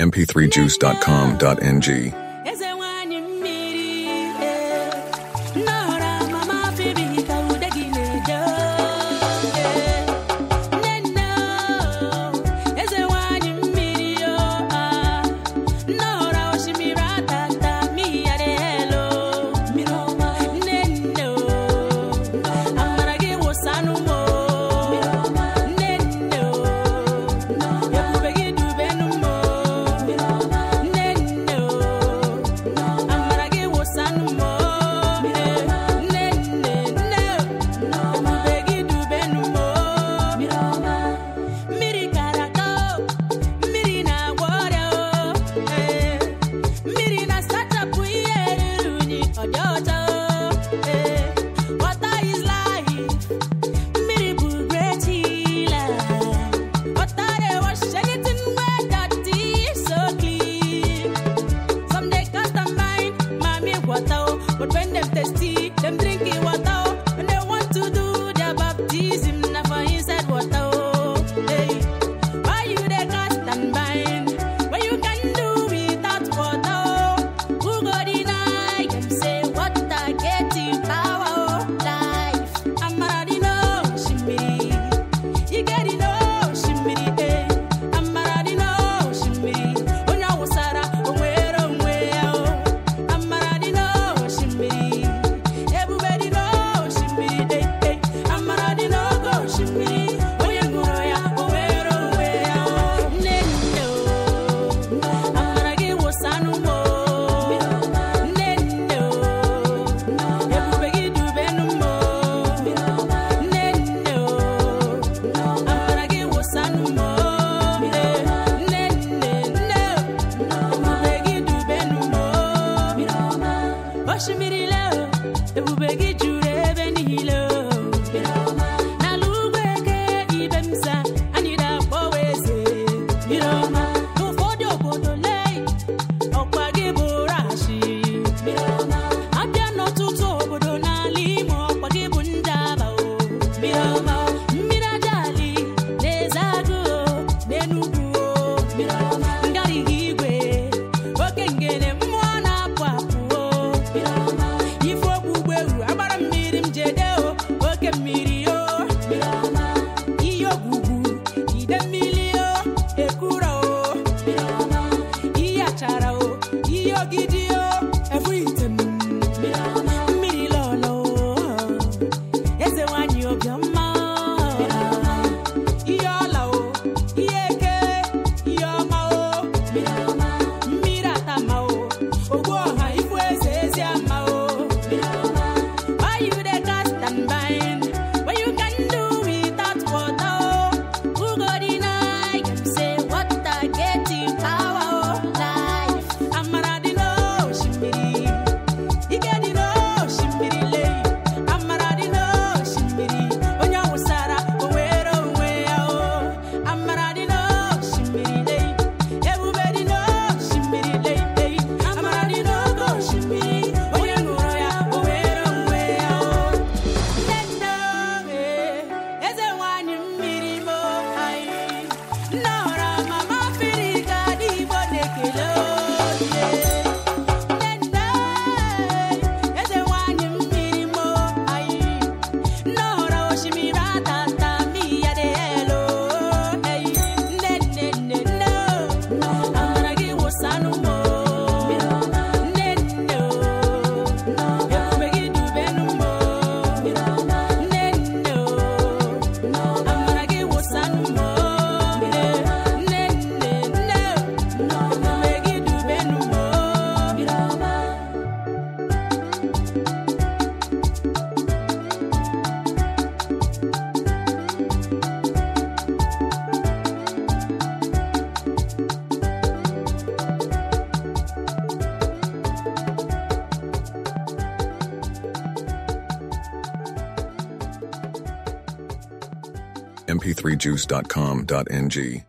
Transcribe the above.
mp3juice.com.ng Oshimiri leo, ebube gị mp3juice.com.ng.